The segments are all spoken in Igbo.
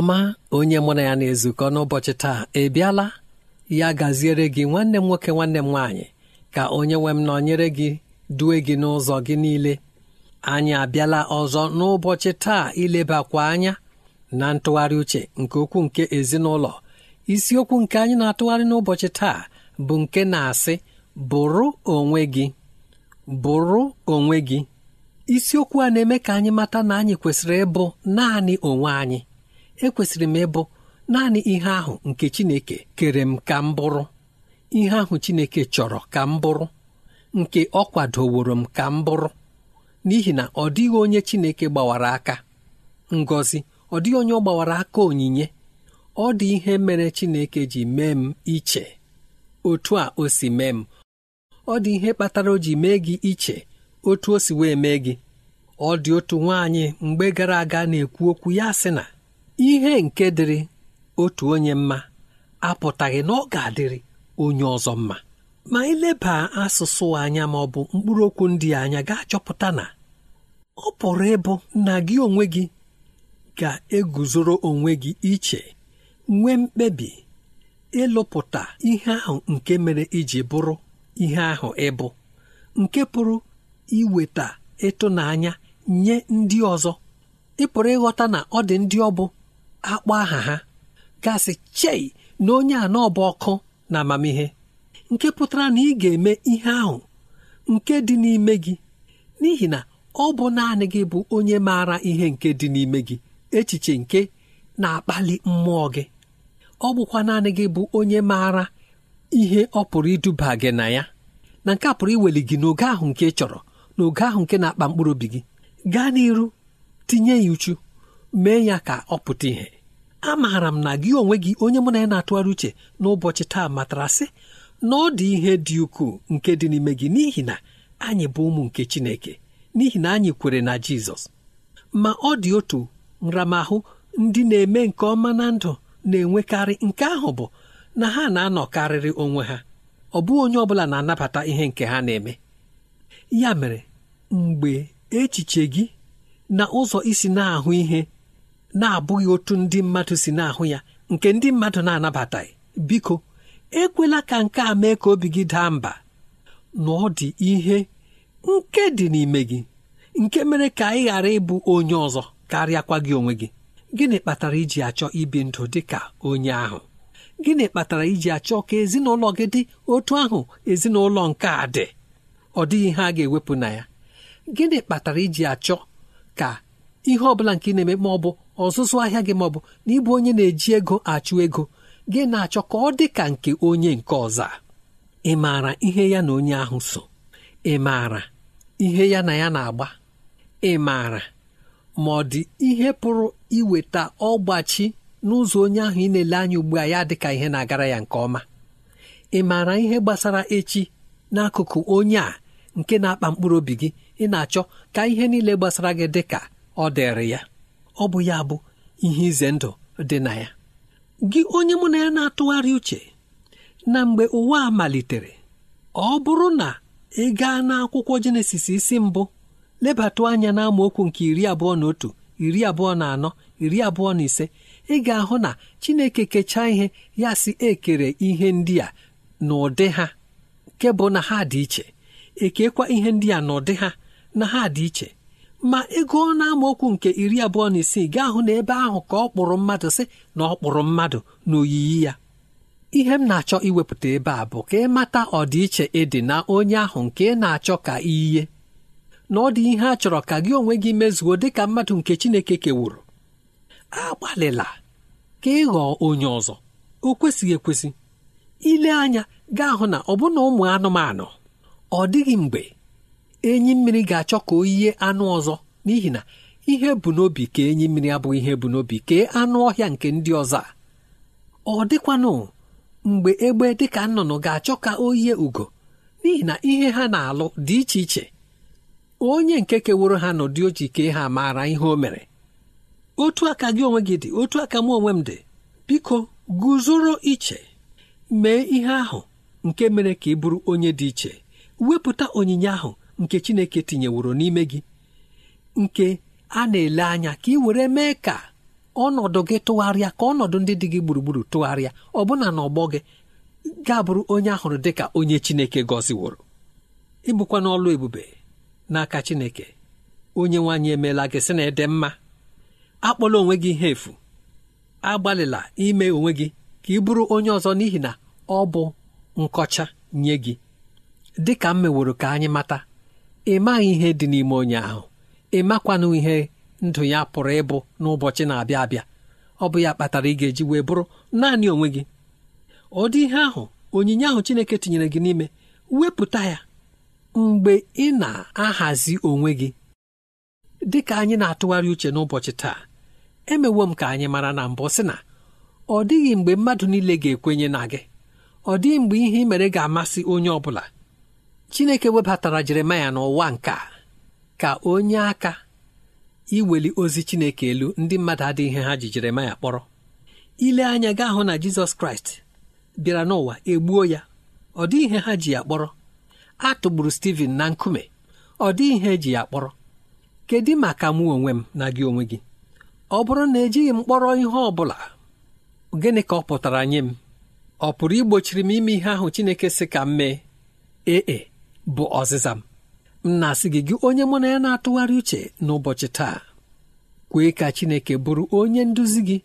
ọma onye mụ na ya na-ezukọ n'ụbọchị taa ị bịala ya gaziere gị nwanne m nwoke nwanne m nwaanyị ka onye nwe m nọnyere gị due gị n'ụzọ gị niile anyị abịala ọzọ n'ụbọchị taa ilebakwa anya na ntụgharị uche nke okwu nke ezinụlọ isiokwu nke anyị na-atụgharị n'ụbọchị taa bụ nke na-asị bụrụ onwe gị bụrụ onwe gị isiokwu a na-eme ka anyị mata na anyị kwesịrị ịbụ naanị onwe anyị ekwesịrị m ịbụ naanị ihe ahụ nke Chineke kere m ka m bụrụ ihe ahụ Chineke chọrọ ka m bụrụ nke ọ kwadoworo m ka m bụrụ n'ihi na ọ dịghị onye Chineke gbawara aka Ngozi, ọ dịghị onye ọ gbawara aka onyinye ọ dị ihe mere Chineke ji mee m iche otu a o si mee m ọ dị ihe kpatara o ji mee gị iche otu o si wee mee gị ọ dị otu nwaanyị mgbe gara aga na-ekwu okwu ya sị na ihe nke dịrị otu onye mma apụtaghị na ọ ga-adịrị onye ọzọ mma ma ileba asụsụ anya ma ọ bụ mkpụrụ ndị anya ga-achọpụta na ọ pụrụ ịbụ na gị onwe gị ga-eguzoro onwe gị iche nwee mkpebi ịlụpụta ihe ahụ nke mere iji bụrụ ihe ahụ ịbụ nke pụrụ iweta ịtụnanya nye ndị ọzọ ị ịghọta na ọ dị ndị ọ akpọ aha ha gasị chei na onye a n'ọba ọkụ na amamihe nke pụtara na ị ga-eme ihe ahụ nke dị n'ime gị n'ihi na ọ bụ naanị gị bụ onye maara ihe nke dị n'ime gị echiche nke na-akpali mmụọ gị ọ bụkwa naanị gị bụ onye maara ihe ọ pụrụ iduba gị na ya na nke a pụrụ iweli gị n'oge ahụ nke ị chọrọ n'oge ahụ nke na-akpa mkpụrụ obi gị gaa n'iru tinye ya uchu mee ya ka ọ pụta ìhè amaara m na gị onwe gị onye mụ na ya na-atụgharị uche n'ụbọchị taa matara sị na ọ dị ihe dị ukwuu nke dị n'ime gị n'ihi na anyị bụ ụmụ nke Chineke n'ihi na anyị kwere na Jizọs ma ọ dị otu nramahụ ndị na-eme nke ọma na ndụ na-enwekarị nke ahụ bụ na ha na-anọkarịrị onwe ha ọ bụghị onye ọ bụla na-anabata ihe nke ha na-eme ya mere mgbe echiche gị na ụzọ isi na-ahụ ihe na-abụghị otu ndị mmadụ si na-ahụ ya nke ndị mmadụ na-anabataghị biko ekwela ka nke a mee ka obi gị daa mba na ọ dị ihe nke dị n'ime gị nke mere ka ị ghara ịbụ onye ọzọ karịakwa gị onwe gị gịnị kpatara iji achọ ibi ndụ dị ka onye ahụ gịnị kpatara iji achọ ka ezinụlọ gị dị otu ahụ ezinụlọ nke a dị ọ dịghị ihe a ga-ewepụ na ya gịnị kpatara iji achọ ka ihe ọ bụla nke ị na-eme ma ọ bụ ọzụzụ ahịa gị ma ọ bụ na ịbụ onye na-eji ego achụ ego gị na-achọ ka ọ dị ka nke onye nke ọzọ ị maara ihe ya na onye ahụ so ị maara ihe ya na ya na-agba ị maara ma ọ dị ihe pụrụ iweta ọgbachi n'ụzọ onye ahụ ị na-ele anya ugbu a ya dịka ihe na-agara ya nke ọma ị maara ihe gbasara echi n'akụkụ onye a nke na-akpa mkpụrụ obi gị ị na-achọ ka ihe niile gbasara gị dịka ọ dịrị ya ọ bụ ya bụ ihe ize ndụ dị na ya gị onye mụ na ya na-atụgharị uche na mgbe ụwa malitere ọ bụrụ na ị gaa n'akwụkwọ jenesis isi mbụ lebatụ anya na nke iri abụọ na otu iri abụọ na anọ iri abụọ na ise ị ga-ahụ na chineke kechaa ihe ya si ekere ihe ndị a n'ụdị ha nke bụ na ha dị iche ekekwa ihe ndị a n'ụdị ha na ha dị iche ma ego na amaokwu nke iri abụọ na isii gaa hụ na ebe ahụ ka ọ kpụrụ mmadụ si na ọ kpụrụ mmadụ n'oyiyi ya ihe m na-achọ iwepụta ebe a bụ ka ị mata ọdịiche ịdị na onye ahụ nke ị na-achọ ka iyiye na ọ dị ihe a chọrọ ka gị onwe gị mezuo dị ka mmadụ nke Chineke kewuru agbalịla ka ị ghọọ onye ọzọ o kwesịghị ekwesị ile anya gaa hụ na ọbụna ụmụ anụmanụ ọ dịghị mgbe enyi mmiri ga-achọ ka o yie anụ ọzọ n'ihi na ihe bụ n'obi ka enyi mmiri abụghị ihe bụ n'obi kee anụ ọhịa nke ndị ọzọ ọ dịkwanụ mgbe egbe dịka nnụnụ ga-achọ ka o yie ugo n'ihi na ihe ha na-alụ dị iche iche onye nke keworo ha n'ụdị ojii kee ha maara ihe o mere otu aka gị onwe gị dị otu aka m onwe m dị biko guzoro iche mee ihe ahụ nke mere ka ị bụrụ onye dị iche wepụta onyinye ahụ nke Chineke tinyeworo n'ime gị nke a na-ele anya ka ị were mee ka ọnọdụ gị tụgharịa ka ọnọdụ ndị dị gị gburugburu tụgharịa ọbụna ọgbọ gị ga-abụrụ onye ahụrụ dị ka onye Chineke gọziworo ịbụkwa n'ọlụ ebube n'aka Chineke onye nwaanyị emeela gị sị na ịdị mma akpọla onwe gị ihe efu agbalịla ime onwe gị ka ị bụrụ onye ọzọ n'ihi na ọ bụ nkọcha nye gị dị ka m meworo ka anyị mata ị maghị ihe dị n'ime onye ahụ ị makwanụ ihe ndụ ya pụrụ ịbụ n'ụbọchị na-abịa abịa ọ bụ ya kpatara ị ga-eji wee bụrụ naanị onwe gị ọ ihe ahụ onyinye ahụ Chineke tinyere gị n'ime wepụta ya mgbe ị na-ahazi onwe gị dị ka anyị na-atụgharị uche n'ụbọchị taa emewo m ka anyị mara na mbụ sị na ọ dịghị mgbe mmadụ niile ga-ekwenye na gị ọ dịghị mgbe ihe ị mere ga-amasị onye ọ bụla chineke webatara jeremaya n'ụwa nke ka onye aka iweli ozi chineke elu ndị mmadụ adịghị ihe ha ji jeremaya kpọrọ ile anya gaa hụ na jizọs kraịst bịara n'ụwa egbuo ya ọ dịghị ihe ha ji ya kpọrọ a tụgburu steven na nkume ọ dịghị ihe ji ya kpọrọ kedu maka mụ onwe m na gị onwe gị ọ bụrụ na ejighị m kpọrọ ihe ọ bụla gịnị ka ọ pụtara nye m ọ pụrụ igbochiri m ime ihe ahụ chineke si ka m mee ee e. bụ ọzịza m m na-asị gị gị onye mụ na ya na-atụgharị uche n'ụbọchị taa kwee ka Chineke bụrụ onye nduzi gị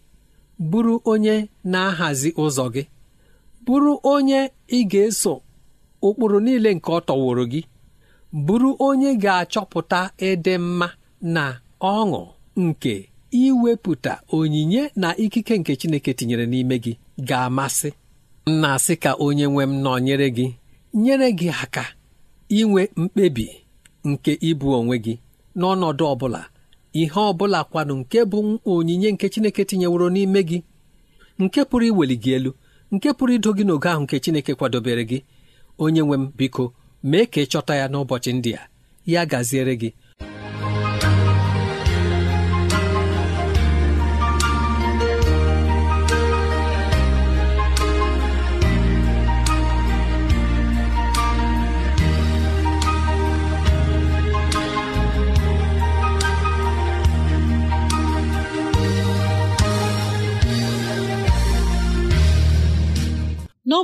bụrụ onye na-ahazi ụzọ gị bụrụ onye ị ga-eso ụkpụrụ niile nke ọ tọworo gị bụrụ onye ga-achọpụta ịdị mma na ọṅụ nke iwepụta onyinye na ikike nke Chineke tinyere n'ime gị ga-amasị m na-asị ka onye nwe m nyere gị nyere gị aka inwe mkpebi nke ịbụ onwe gị n'ọnọdụ ọbụla ihe ọbụla kwanụ nke bụ onyinye nke Chineke tinyeworo n'ime gị nke pụrụ iweli gị elu nke pụrụ ido gị n'oge ahụ nke Chineke kwadobere gị onye nwe m biko mee ka ị chọta ya n'ụbọchị ndị a ya gaziere gị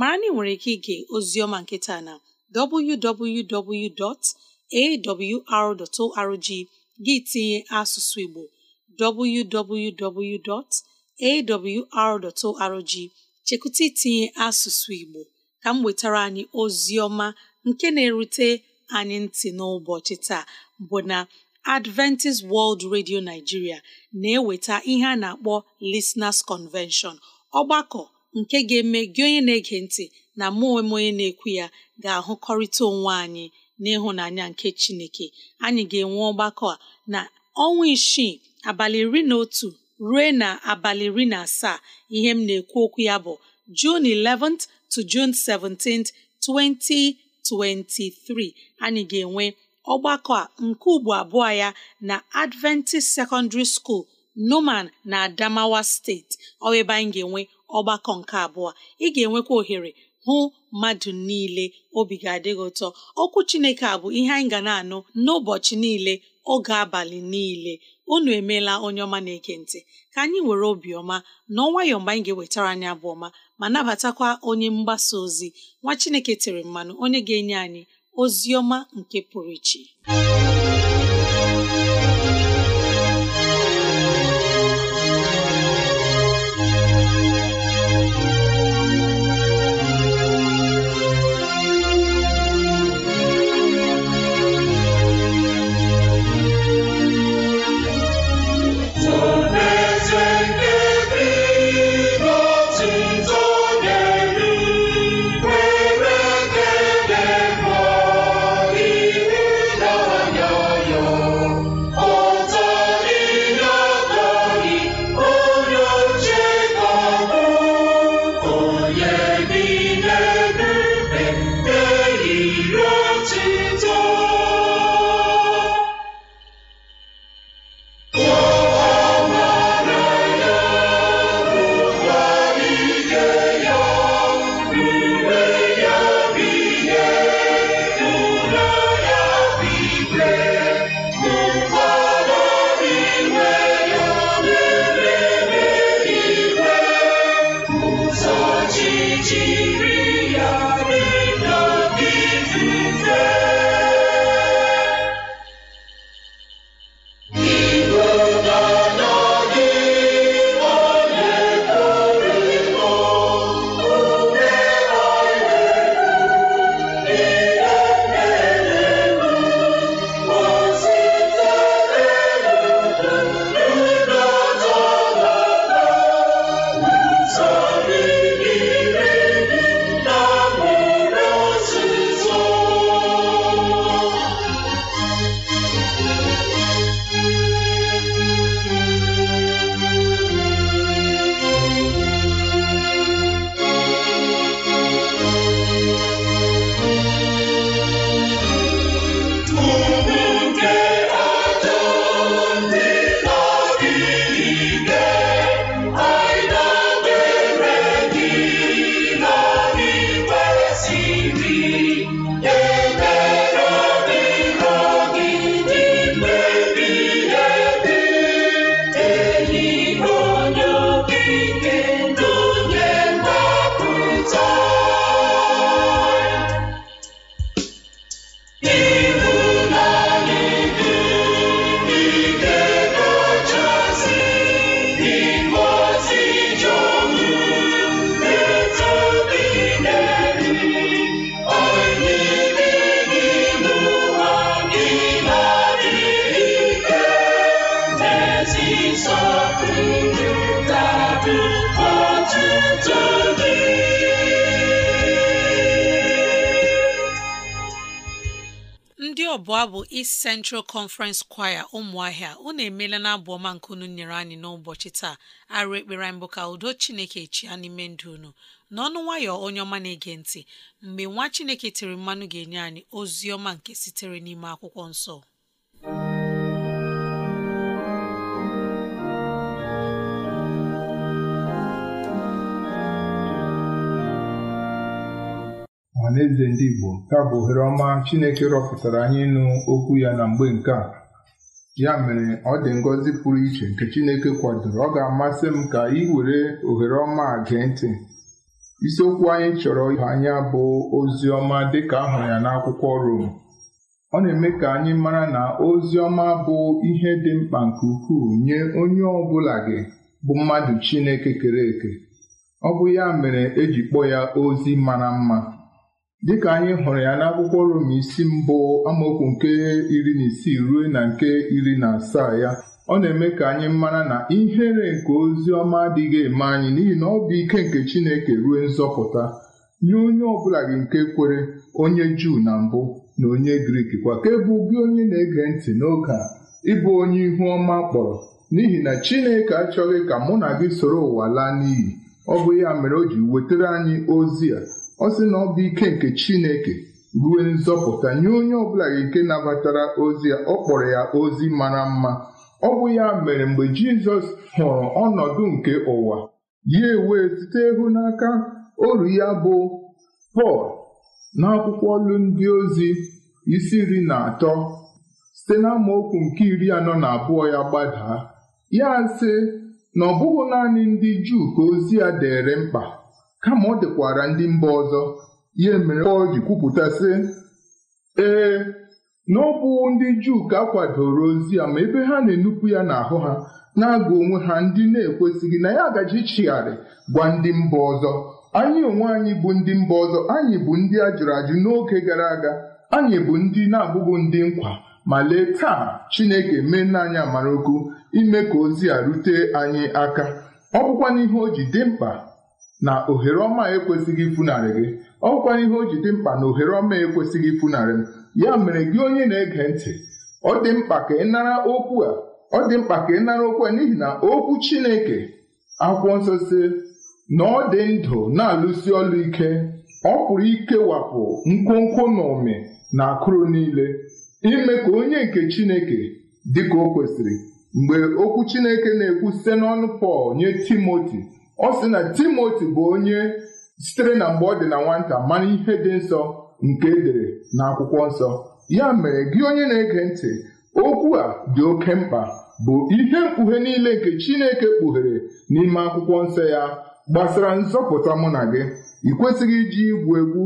mara na nwere ike ige ozioma nke na www.awr.org gị tinye asụsụ Igbo www.awr.org chekụta itinye asụsụ Igbo ka m wetara anyị ozioma nke na-erute anyị ntị n'ụbọchị taa bụ na Adventist World Radio Nigeria na-eweta ihe a na-akpọ Listeners Convention ọgbakọ nke ga-eme gị onye na-ege ntị na mụ onwe onye na-ekwu ya ga-ahụkọrịta onwe anyị n'ịhụnanya nke Chineke anyị ga-enwe ọgbakọ a na ọnwa isii abalị iri na otu ruo na abalị iri na asaa ihe m na-ekwu okwu ya bụ June 11th to June 17th 2023 anyị ga-enwe ọgbakọ a nke ugbo abụọ ya na Adventist Secondary School Numan na Adamawa steeti ọ ebe anyị ga-enwe ọgbakọ nke abụọ ị ga-enwekwa ohere hụ mmadụ niile obi ga-adị gị ụtọ okwu Chineke a bụ ihe anyị ga na-anụ n'ụbọchị niile oge abalị niile unu emeela onye ọma na ekentị ka anyị were obiọma na ọnwayọ mgbe anyị ga-ewetara anyị abụ ọma ma nabatakwa onye mgbasa ozi nwa Chineke tere mmanụ onye ga-enye anyị ozi ọma nke pụrụ iche jiri ọbụla bụ East Central Conference Choir ụmụahịa unu emeela na abụ ọma nke unu nyere anyị n'ụbọchị taa arụ ekpere mbụ bụ ka udo Chineke chia n'ime ndụ unu n'ọnụ nwayọ onye ọma na-ege ntị mgbe nwa Chineke tiri mmanụ ga-enye anyị ozi ọma nke sitere n'ime akwụkwọ nsọ ọhaneze ndị Igbo ya bụ ohere ọma Chineke rọpụtara anyị ịnụ okwu ya na mgbe nke a ya mere ọ dị ngọzi pụrụ iche nke Chineke kwadoro ọ ga-amasị m ka ị were ohere ọma a gee ntị isiokwu anyị chọrọ ịhụ anya bụ ozi ọma dịka ahụrụ ya n'akwụkwọ Rom ọ na-eme ka anyị mara na ozi ọma bụ ihe dị mkpa nke ukwuu nye onye ọ bụla gị bụ mmadụ Chineke kere eke ọ bụ ya mere eji kpọọ ya ozi mara mma Dịka anyị hụrụ ya n'akwụkwọ Rom isi mbụ amaokwu nke iri na isii ruo na nke iri na asaa ya ọ na-eme ka anyị mara na ihere nke ozi ọma adịghị eme anyị n'ihi na ọ bụ ike nke Chineke ruo nzọpụta nye onye ọbụla gị nke kwere onye Juu na mbụ na onye Grik kwa ka e gị onye na-ege ntị n'oge a ịbụ onye ihu ọma kpọrọ n'ihi na Chineke achọghị ka mụ na gị soro ụwa laa n'iyi ọ bụ ya mere o ji wetara anyị ozi a ọ sị na ọ bụ ike nke Chineke ruo nzọpụta nye onye ọbụla nke nabatara ozi ya ọ kpọrọ ya ozi mara mma ọ bụ ya mere mgbe Jizọs hụrụ ọnọdụ nke ụwa ya ewee site ịhụnaka oru ya bụ Pọl n'akwụkwọ olu ndị ozi isi nri na atọ site okwu nke iri anọ na abụọ ya gbadaa ya sị na ọ bụghị naanị ndị Juu ka ozi ya dịịrị mkpa kama ọ dịkwara ndị mba ọzọ ihe mere ọ ji kwupụta sị ee na ọ bụ ndị Juu ka akwadoro ozi a ma ebe ha na-enupụ ya n'ahụ ha na-agụ onwe ha ndị na-ekwesịghị na ya agaji ịchịgharị gwa ndị mba ọzọ anyị onwe anyị bụ ndị mba ọzọ anyị bụ ndị a jụrụ ajụ n'oge gara aga anyị bụ ndị na-abụghị ndị nkwa ma lee taa Chineke mee n'anya amara ukwu ime ka ozi a rute anyị aka ọ bụkwa n'ihe o ji dị mkpa na ohere ọma ekwesịghị ifunarị gị ọ bụkwa ihe o ji dị mkpa na ohere ọma ekwesịghị ifunarị m ya mere gị onye na-ege ntị ọ dị mkpa ka ị nara okwu a ọ dị mkpa ka ị nara okwu a n'ihi na okwu Chineke akwụkwọ nsọ si na ọ dị ndụ na-alụsi ọlụ ike ọ pụrụ ikewapụ nkwonkwo na ụmị na akụrụ niile ime ka onye nke Chineke dị ka o kwesịrị mgbe okwu Chineke na-ekwu site n'ọnụ Pọl nye Timoti ọ sị na timoti bụ onye sitere na mgbe ọ dị na nwata mara ihe dị nsọ nke edere na akwụkwọ nsọ ya mere gị onye na-ege ntị okwu a dị oke mkpa bụ ihe mkpughe niile nke Chineke kpughere n'ime akwụkwọ nsọ ya gbasara nzọpụta mụ na gị ị iji igwu egwu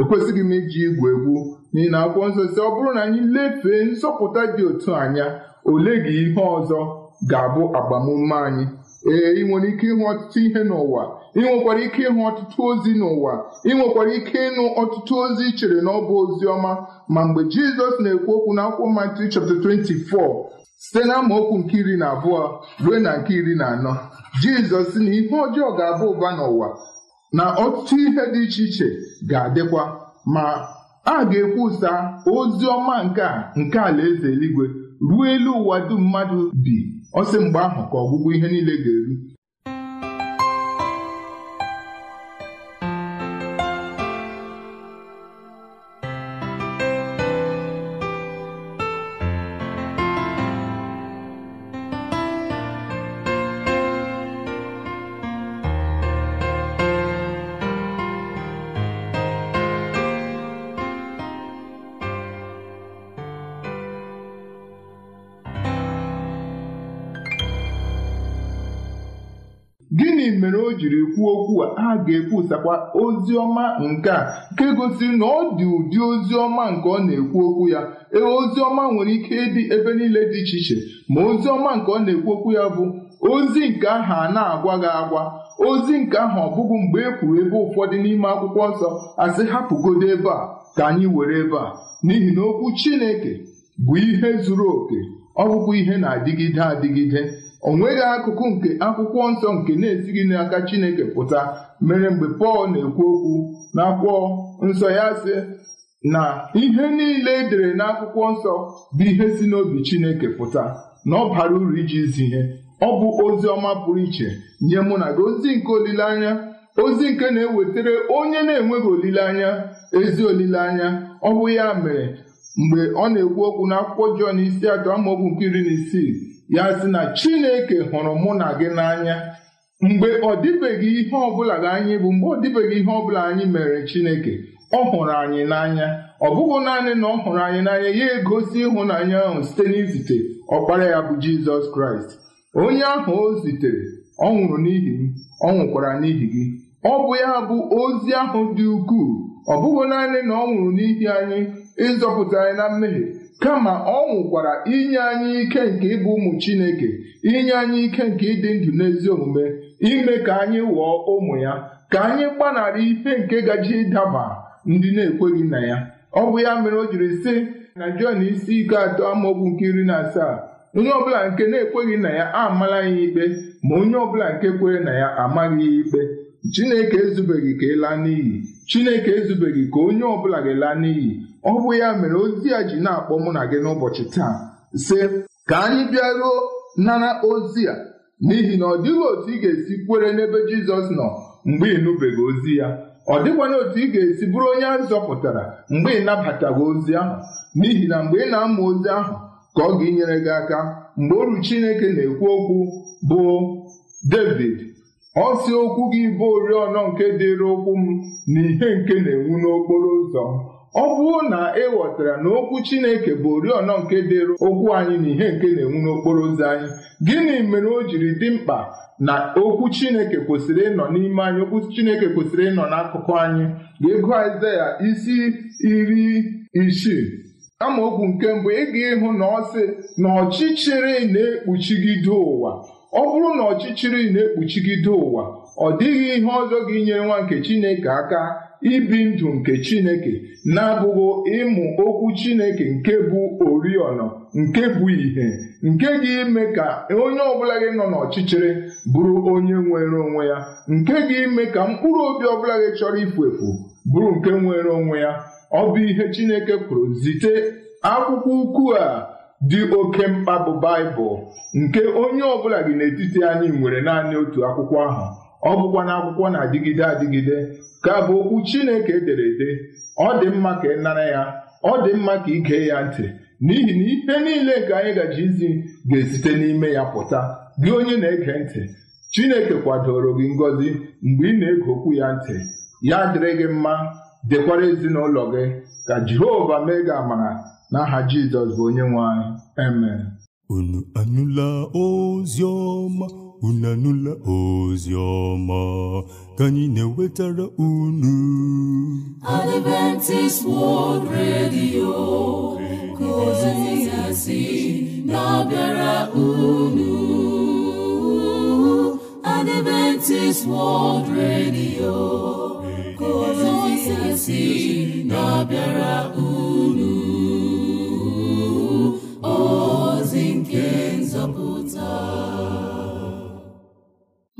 ekwesịghị m iji igwu egwu n'ihi na akwụkwọ nsọ si ọ bụrụ na anyị lefee nzọpụta dị otu anya ole gị ihe ọzọ ga-abụ agbamume anyị ee ị nwere ike ịhụ ọtụtụ ihe n'ụwa ị nwekwara ike ịhụ ọtụtụ ozi n'ụwa ị nwekwara ike ịnụ ọtụtụ ozi ị chere na ọ bụ ozi ọma ma mgbe jizọs na-ekwu okwu na akwụkwọ Matiu chapter 24 site na amaokwu nke iri na abụọ ruo na nke iri na anọ jizọs na ihe ọjọọ ga-aba ụba n'ụwa na ọtụtụ ihe dị iche iche ga-adịkwa ma a ga-ekwusa ozi ọma nke a nke alaeze eluigwe ruo elu ụwa dum mmadụ bi Ọ sị mgbe ahụ ka ọgwụgwụ ihe niile ga-eru jiri kwuo okwu a ha ga-ekwusakwa ozi ọma nke a nke gosiri na ọ dị ụdị ozi ọma nke ọ na-ekwu okwu ya ee ozi ọma nwere ike ịdị ebe niile dị iche iche ma ozi ọma nke ọ na-ekwu okwu ya bụ ozi nke ahụ na-agwa gị agwa ozi nke ahụ ọ bụghị mgbe e kwuru ebe ụfọdụ n'ime akwụkwọ nsọ asị hapụgodo ebe a ka anyị were ebe a n'ihi na okwu Chineke bụ ihe zuru oke ọ bụkwa ihe na-adịgide adịgide o nweghị akụkụ nke akwụkwọ nsọ nke na-esighị n'aka Chineke pụta mere mgbe Pọl na-ekwu okwu n'akwụkwọ nsọ ya sị na ihe niile e dere n'akwụkwọ nsọ bụ ihe si n'obi Chineke pụta na ọ bara uru iji zi ihe ọ bụ ozi ọma pụrụ iche nye mụ na gị ozi nke olileanya ozi nke na-ewetara onye na-enweghị olileanya ezi olileanya ọ bụ ya mere mgbe ọ na-ekwu okwu n'akwụkwọ Jọn isi atọ amaokwu nke iri na isii ya sị na chineke hụrụ mụ na gị n'anya mgbe ọ dịbeghị ihe ọbụla gị anyị bụ mgbe ọ dịbeghị ihe ọbụla anyị mere chineke ọ hụrụ anyị n'anya ọ bụghị naanị na ọ hụrụ anyị n'anya ya egosi ịhụnanya ahụ site n'izite ọkpara ya bụ jizọs kraịst onye ahụ o zitere ọ nwụrụ n'ihi m ọ nwụkwara n'ihi gị ọ bụ ya bụ ozi ahụ dị ukwuu ọ bụghị naanị na ọ nwụrụ n'ihi anyị ịzọpụta anyị na mmehie kama ọ nwụkwara inye anyị ike nke ịbụ ụmụ Chineke inye anyị ike nke ịdị ndụ n'ezi omume ime ka anyị ghọọ ụmụ ya ka anyị gbanara ife nke gaji ịdaba ndị na-ekweghị na ya ọ bụ ya mere o jiri sị na Jọn isi ike atọ amaokwu nke iri na asaa onye ọbụla nke na-ekweghị na ya amala ya ikpe ma onye ọbụla nke kwere na ya amaghị ya ikpe Chineke ezubeghị ka ịlaa e n'iyi Chineke ezubeghị ka onye ọbụla ga ela n'iyi ọ bụ ya mere ozi ya ji na-akpọ mụ na gị n'ụbọchị taa sị ka anyị bịaruo nara ozi a n'ihi na ọ dịghị otu ị ga-esi kwere n'ebe Jizọs nọ mgbe ị nụbeghị ozi ya ọ dịkwana otu ị ga-esi bụrụ onye a zọpụtara mgbe ị nabataghị ozi ahụ n'ihi na mgbe ị na-ama ozi ahụ ka ọ ga-enyere gị aka mgbe oru Chineke na-ekwu okwu bụ David ọ okwu gị bụ oriọna nke dịrị ụkwụ m na ihe nke na-enwu n'okporo ụzọ ọ bụrụ na ị e ghọtara na okwu Chineke bụ oriọna nke dịrụ okwu anyị na ihe nke na-enwu n'okporo ụzọ anyị gịnị mere o jiri dị mkpa na okwu Chineke kwesịrị ịnọ n'ime anyị okwu Chineke kwesịrị ịnọ n'akụkụ anyị ga-ego Aịzaya isi iri isii amaokwu nke mbụ ị ga ịhụ na ọsị na ọchịchịrị na-ekpuchigide ụwa ọ bụrụ na ọchịchịrị na-ekpuchigide ụwa ọ dịghị ihe ọzọ ga-enyere nwa nke Chineke aka ibi ndụ nke Chineke na-abụghị ịmụ okwu Chineke nke bụ oriọna nke bụ ìhè nke ga-ime ka onye ọbụla gị nọ n'ọchịchịrị bụrụ onye nwere onwe ya nke ga-eme ka mkpụrụ obi ọbụla gị chọrọ ifu efu bụrụ nke nwere onwe ya ọ bụ ihe Chineke kwuru zite akwụkwọ ukwu a dị oke mkpa bụ Baịbụl nke onye ọbụla gị n'etiti anyị nwere naanị otu akwụkwọ ahụ ọ bụkwa na akwụkwọ na-adịgide adịgide ka bụ okwu Chineke edere ede ọ dị mma ka ị nara ya ọ dị mma ka ị gee ya ntị n'ihi na ihe niile nke anyị gaji izi ga-esite n'ime ya pụta gị onye na-ege ntị Chineke kwadoro gị ngọzi mgbe ị na-ege okwu ya ntị ya dịrị gị mma dịkwara ezinụlọ gị ka Jehova mee gị amara n'aha Jizọs bụ onye nwe anyị amen unu anụla ozi ọma unu ozi ọma ka anyị na-ewetara unu Adventist World Radio ka ozi ya na-abịara unu Adventist World Radio ka ozi ya na-abịara unu ozi nke nzọpụta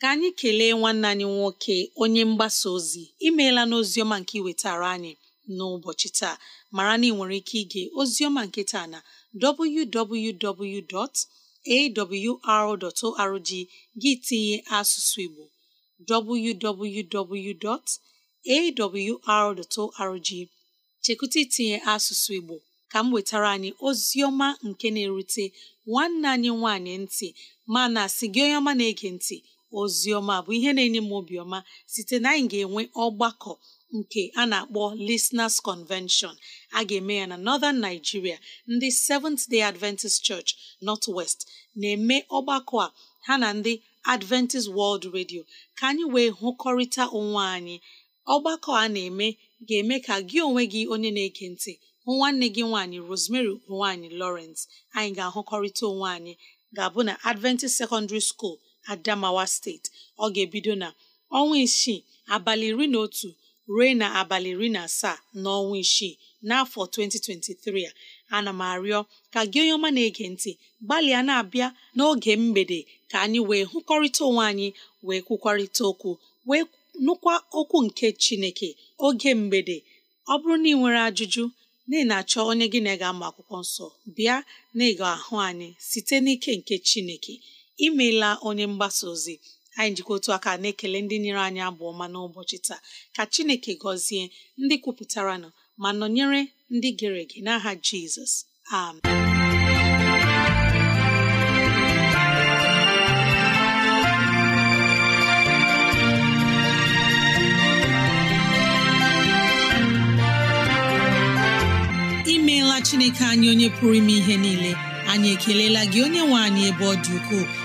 ka anyị kelee nwanne anyị nwoke onye mgbasa ozi imeela n'oziọma nke iwetara anyị n'ụbọchị taa mara na ị nwere ike ige oziọma nke taa na www.awr.org gị tinye asụsụ Igbo www.awr.org chekwụta itinye asụsụ Igbo ka m wetara anyị ozioma nke na-erute nwanne anyị nwaanyị ntị mana sị gị onye ọma na-ege ntị oziọma bụ ihe na-enye m obiọma site na anyị ga-enwe ọgbakọ nke a na-akpọ Listeners Convention a ga-eme ya na Northern Nigeria ndị Seventh Day Adventist Church North West na-eme ọgbakọ a ha na ndị Adventist World Radio ka anyị wee hụkọrịta onwe anyị ọgbakọ a na-eme ga-eme ka gị onwe gị onye na-ege ntị nwanne gị nwaanyị Rosemary nwaanyị Lawrence anyị ga-ahụkọrịta onwe anyị ga-abụ na Adventist Secondary School adamawa steeti ọ ga-ebido na ọnwa isii abalị iri na otu ruo na abalị iri na asaa n'ọnwa isii n'afọ 2023 a ana m arịọ ka gị onye ọma na-ege ntị gbalịa na-abịa n'oge mgbede ka anyị wee hụkọrịta onwe anyị wee kwukwarịta okwu wee nụkwa okwu nke chineke oge mgbede ọ bụrụ na ị nwere ajụjụ na ị na-achọ onye gị na ga-ama akwụkwọ nsọ bịa na ịga ahụ anyị site n'ike nke chineke imeela onye mgbasa ozi anyị njikọ otu aka na-ekele ndị nyere anyị abụ ọma n'ụbọchị taa ka chineke gọzie ndị kwupụtara nọ ma nọnyere ndị gere ege n'aha jizọs amen chineke anyị onye pụrụ ime ihe niile anyị ekelela gị onye nwe anyị ebe ọ dị ukwuu